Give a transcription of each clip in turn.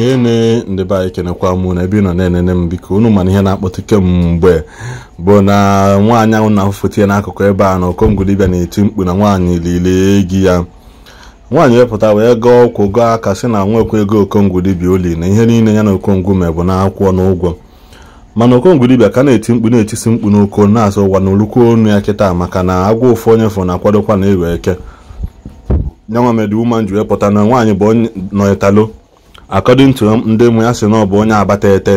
hene ndị be anyị kenekwa mụ na ebe ị nọ na-enene m biko unu mana ihe na-akpọtụ mgbe bụ na nwaanyị ahụ na-afụfụta ya n'akụkụ ebe a na ọkọngolibịa na-eti mkpu na nwaanyị lile gị ya nwaanyị wepụta wee gaa ọkwụ gaa aka sị na nwekwa ego okongolibịa oli na ihe niile ya na okongwu bụ na akwụkwọ na ụgwọ mana okongolibịa ka na-eti mkpu na-etisi mkpu n'oko na-asụ ụwa na olukwu onu ya kịta maka na agwa ụfụ onye fụ na-akwadokwa na ewe eke nyanwa woman ji wee pụta na nwaanyị bụ nọyetalo according to ndị mụ ya si na ọ bụ onye abata ete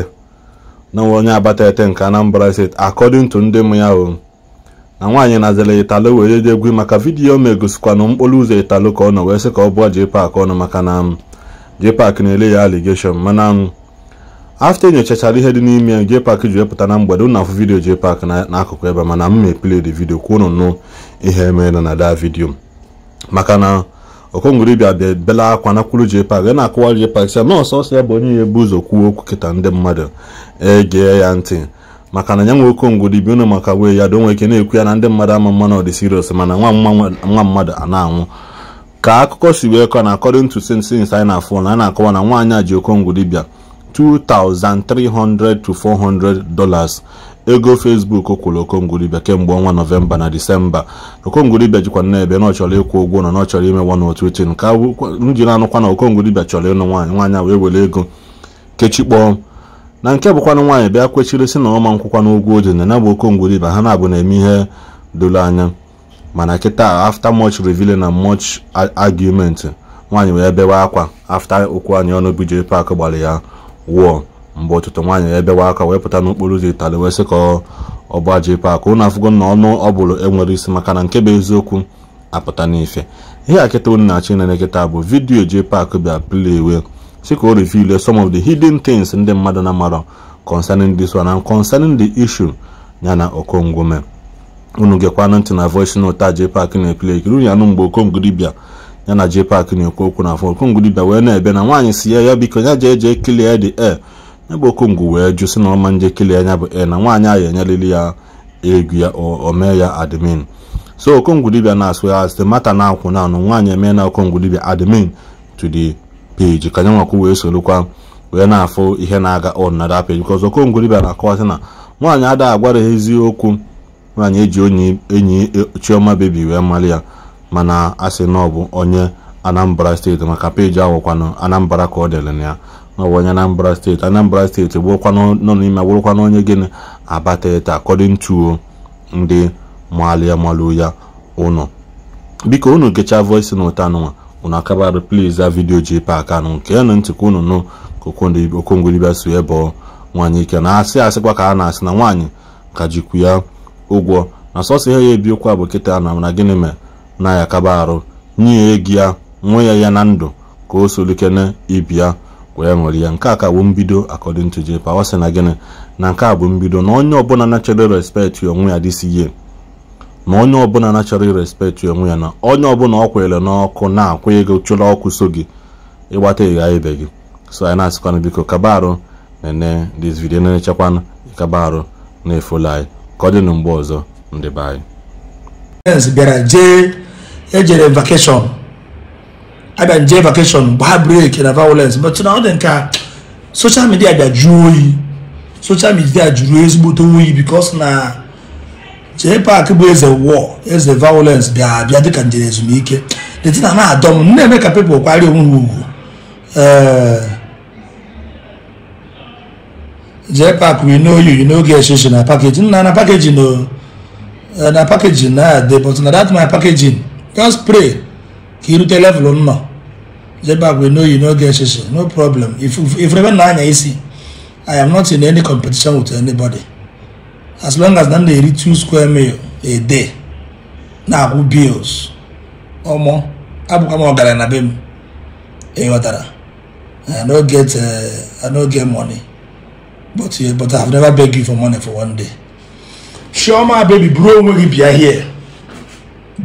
na nwe onye abata ete nke Anambra steeti according to ndị mụ ya o na nwaanyị nazere italo wee dị egwu maka vidiyo ma na mkpụrụ ụzọ italo ka ọ nọ wee sị ka ọ bụọ JPAC ọnụ maka na JPAC na-ele ya aligeshon mana afta nyochachara ihe dị n'ime JPAC ji wepụta na mgbede ụnụ afụ vidiyo JPAC n'akụkụ ebe mana m ma epiled vidiyo kwuo unu nụ ihe mere na da vidiyo maka na okongoro bịa bịa bela akwa na kwuru JPAC a na-akụwa JPAC sị na ọsọ ya bụ onye ya ebu ụzọ kwuo okwu kịta ndị mmadụ egee ya ntị maka na ya nwe okongoro bi unu maka wee ya donwe ike na-ekwu ya na ndị mmadụ ama mma na ọ dị mana nwa mmadụ a na-anwụ ka akụkọ si wee kọ na according to sins anyị na-afụ na a na-akọwa na nwaanyị a ji okongoro bịa 2,300 to 400 dollars ego facebook kwụrụ okongwulibia kemgbe ọnwa nọvemba na disemba okongwulibia jikwa n'ebe na ọ chọrọ ịkwụ ụgwọ na ọ chọrọ ime one otu echi nke ji na-anụkwa na okongwulibia chọrọ ịnụ nwaanyị nwaanyị wee were ego kpọọ na nke bụkwanụ nwaanyị bịa kwechiri si na ọma nkwụkwa na o ji na ya ha na-abụ na-eme ihe doro anya mana kịta after much revealing na much argument nwaanyị wee bewe akwa after okwu anyị ọnụ bj pak gbara ya wụọ mgbe ọtụtụ nwaanyị ebewa aka wee pụta n'okporo ụzọ itali wee sị ka ọ bụ aja ipe aka ụnụ afụgo na ọnụ ọ bụrụ enwere isi maka na nke bụ eziokwu apụta n'ife ihe a kịta unu na achị ịnene kịta bụ vidiyo ji pak bịa plewe si ka o reveal some of the hidden things ndị mmadụ na-amarọ concerning this one and concerning the issue ya na okongwome unu ntị na voice note a pak na-epile ekiri unu anụ mgbe okongudibia ya na jpak na-ekwu okwu na afọ okongudibia wee na-ebe na nwaanyị si ya ya biko ya jee jee kilie the air ebe okongwu wee jụ sị na ọma njekele anya bụ e na nwaanyị ahụ enyelili ya egwu ya omee ya admin so okongwu dibia na-asụ ya site matter na akwụ na nwaanyị emee na okongwu dibia admin to the page ka nyanwakwu wee sorokwa wee na-afụ ihe na-aga on na that page because okongwu dibia na-akọwasị na nwaanyị ada agwara ha eziokwu nwaanyị eji onye enyi e, chioma bebi wee mali ya mana asị na ọ bụ onye anambra steeti maka peji ahụkwanụ anambra ka ọ dere na ya n'ọwụwa Anambra steeti Anambra steeti bụrụkwa nọ n'ime bụrụkwa na onye abata abatata akọdịn to ndị malia malụ ya ụnụ biko unu gechaa voice na ụta anụnwa unu akabarụ please za vidio ji pak anụ nke ya na ka unu nụ okongwelibia si ebọ nwaanyị ike na asị asịkwa ka a na-asị na nwaanyị ka jikwu ya ụgwọ na sọsọ ihe ya ebi ụkwa bụ kịta na na gịnị mere na ya akaba arụ nye ya ya nwe ya ya na ndụ ka o solikene ibi ya wee nwere ya nke a ka bụ mbido according to Jay Power sị na gịnị na nke a bụ mbido na onye ọbụla na-achọrọ respect onwe ya this year na onye ọbụla na-achọrọ respect onwe ya na onye ọbụla ọ kwere n'ọkụ na-akwụ ego chụrụ ọkụ so gị ịgbata ịgha ibe gị so anyị na-asịkwana biko kaba arụ nene this video na-echekwana ịkaba arụ na-efolu anyị ka ọ dị na mgbe ọzọ ndị be anyị bịara jee ejere vakeshọn agba nje vakeshọn gbaa breki na violence but na ọ dị nke a social media gbaju oyi social media jụrụ ezigbote oyi because na jee park bụ eze war eze violence bịa abịa dịka njem ezumike detina na adọ m na-eme ka people kwari onwe ha ugwu eh, jee park we know you you know get shoshi na packaging na na packaging o oh, eh, na packaging na but na that my packaging just pray iru telefụlụ nnọ jebak we no you no get sisi no problem if if rebe na anya isi i am not in any competition with anybody as long as na m na two square meal a day na-akwụ bills ọmọ abụkwa m ọgaranya na be m ịghọtara i no get uh, i no get money but uh, but i have never beg you for money for one day. chioma baby buru onwe gị bịa here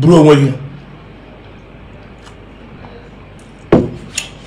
buru onwe gị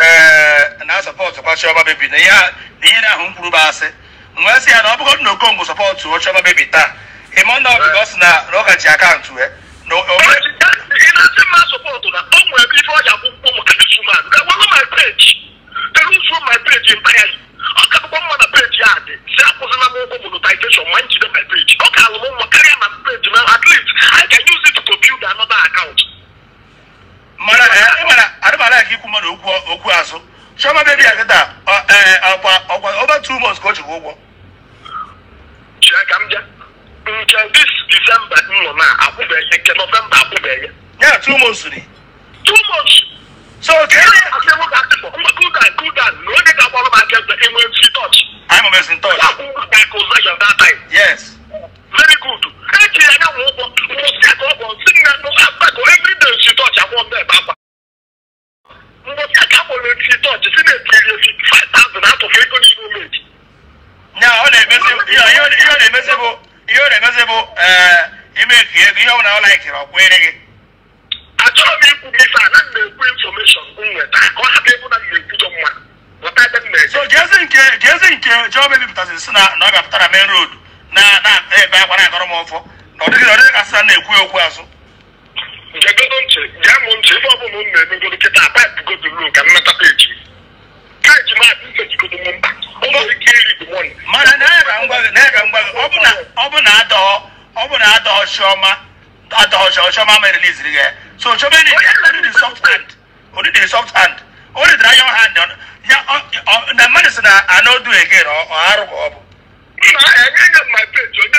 Eh, na sọpọtụ kwa Chioma Baby na ihe na ahụ mkpụrụ bụ asị wee sị ya na ọ bụrụ na Okonkwọ sọpọtụ Chioma Baby taa ịmụ na ọ eh. eh, sị na na ọ ji akaụntụ ga-abụkwa mma na peji a dị si akwụzịla m ụgwọ page ọ na at least I can use it to build another ala ka ikwu mmadụ okwu okwu azụ chioma bebi ya kịta e, ọkwa ọkwa over two months ka o jiri ụgwọ nke dis disemba m na akwụbeghị nke nọvemba akwụbeghị ya two months ni two months ihe ọ na-emezi bụ imeki ego ihe ọ bụla ọ laikiri ọ kwere gị achọrọ m ikwu gị ife ana m na-ekwu infọmeshọn nweta ka ọ hapụ na m na-ekwujọ na ọ bịapụtara main road na na ebe akwa ọ okwu azụ ma ma release ri yɛ so so bɛ ni di di soft hand o ni di soft hand o ni dira yɔn hand ɔn ya ɔ na medicine a n'o do again ɔ ɔ arugɔ ɔbu. ma ɛ ne ne ma pe jɔ ne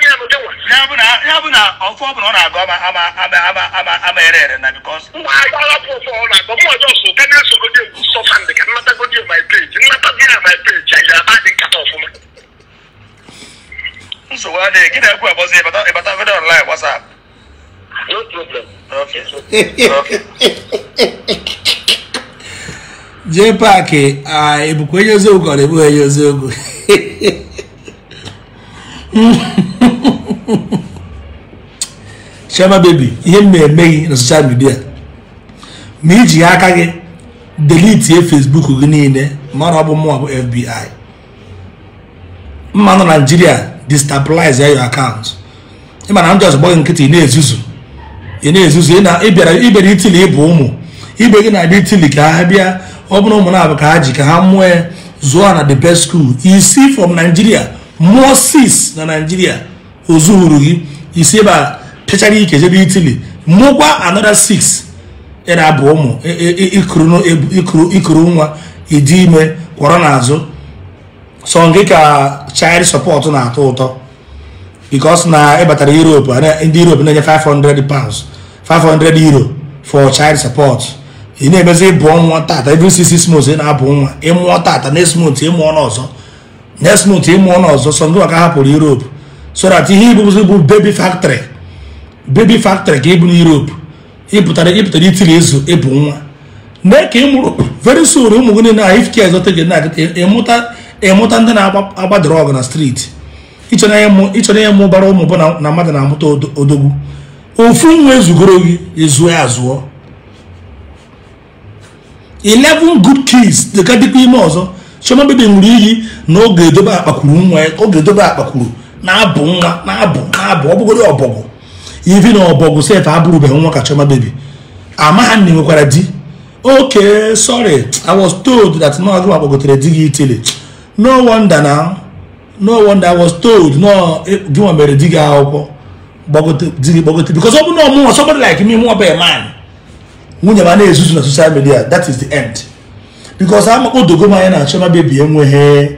ya bụ na ọbụla ọ na-agụ ama ama ama ama ama na e ịbata jee paakị ebukwa onye a ka ọ na-ebugha onye oziogwu chioma bebi ihe m na-emeghị na soshal midia ma iji aka gị delitie fesbuk gị niile ma ọ bụ mụọ bụ fbi mma nọ naijiria destabilize your account ịma na ndị ọzọ nkịtị ị na-ezuzu ị na-ezuzu ịbịara ibere itili ịbụ ụmụ ibe gị na-abịa itili ka ha bịa ọ bụrụ ụmụ na-abụ ka ha ji ka ha mụọ zụọ na the best school isi from naijiria mụọ sis na naijiria ozuhuru gị isi ebe a chechara ike jebe itili mụkwa another six ịra abụ ụmụ ikuru nwa ịdị ime kwọrọ n'azụ so nke ka child support na-atọ ụtọ because na é europe ndị europe na-enye 500 pounds 500 euro for child support ị na-emezi ịbụ nwa tata every six months ị na-abụ nwa ịmụọ tata next month ịmụọ n'ọzọ next month ịmụọ n'ọzọ so ndị maka hapụrụ europe so that o ibụzi bụ baby factory bebi factory ka ịbụ n'Europe ịpụtara ịpụtara itiri ezu ịbụ nwa mee ka ị very soon ụmụ gị na ahụ ifke ezote gị na-agịta emụta ndị na agba ọgụ na streeti ịchọrọ ya mụ bara ụmụ bụ na mmadụ na-amụta odogwu ofu nwa ezugoro gị ezuo azụọ 11 good kids dịka dịkwa ime ọzọ chioma bebi nwere iyi na oge edobe akpakwuru nwa oge edobe akpakwuru na-abụ nwa na-abụ na-abụ ọ bụgoro ọbọgwụ ivi na ọbọgwụ abụrụ abụrụbeghị nwa ka Chioma baby amaghị nne nwekwara di ok sorry i was told that no agụma gbagotere di gị itili no wonder na no wonder i was told e, gị nwa mere di gị akwụkwọ di gị gbagote because ọ bụ na ọmụnwa somebody like me mụọ bụ man nwunye ma na-ezuzu na social media that is the end because amakpodogo m anya na Chioma baby enweghị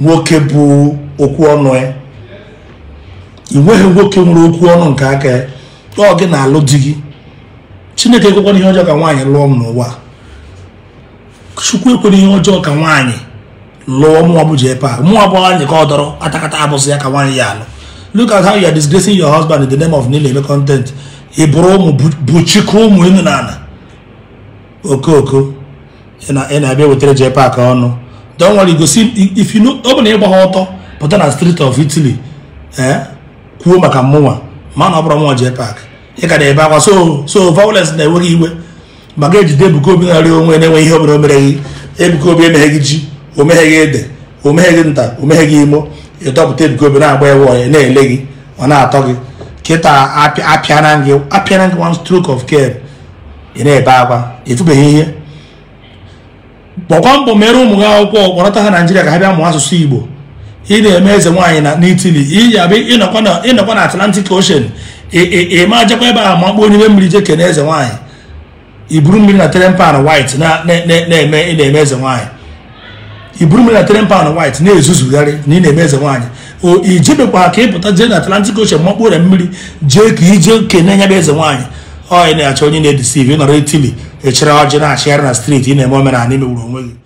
nwoke bụ okwu ọnụ ya ị nweghị nwoke nwere okwu ọnụ nke aka ya ọ gị na-alụ di gị chineke ekwekwana ihe ọjọọ ka nwaanyị lụọ m n'ụwa chukwu ekwere ihe ọjọọ ka nwaanyị lụọ mụnwa bụ jepa mụnwa bụ anyị ka ọ dọrọ atakata abụsị ya ka nwaanyị ya alụ look at how you are disgracing your husband in the name of nile eme content ị bụrụ ụmụ buchikọ ụmụ enu na ala okooko ị na-abịa wetara jepa ka ọnụ dọnwere igosi ọ bụ na ịgba ha ọtọ pụta na street of Italy ee eh? kwuo maka mụnwa ma na ọ bụrụ mụnwa jee paakị ịka na-ebe akwa so so violence na-enweghị iwe maka ejide Ebuka Obi narị onwe na-enwe ihe ọbụla o mereghị Ebuka Obi emegheghị ji o megheghị ede o nta o megheghị imo ịdọpụta Ebuka Obi na-agba ewe onye na-ele gị ọ na-atọ gị kịta apịana gị apịana gị one stroke of care ị na-ebe akwa efubeghị ihe bọkwa mbọ mere ụmụ gị akwụkwọ kpọrọta ha Naijiria ka ha bịa mụọ asụsụ Igbo ị na-eme eze nwaanyị na n'itili ịnọkwa na atlantic ocean ịma jakwa ebe ahụ ma kpọọ n'ime mmiri je na eze nwaanyị iburu mmiri na teren pan white na-eme ị na-eme eze nwaanyị iburu mmiri na teren pan na-ezuzugharị na ị na-eme eze nwaanyị o ijebekwa ka ịpụta jee na atlantic ocean ma kpọọ mmiri jee ka ije kene nya bụ eze nwaanyị ọ ị na-achọ onye na-edisiv nọrọ itili echere ọjị na-achịgharị na streeti ị na-eme omenala imegburu onwe gị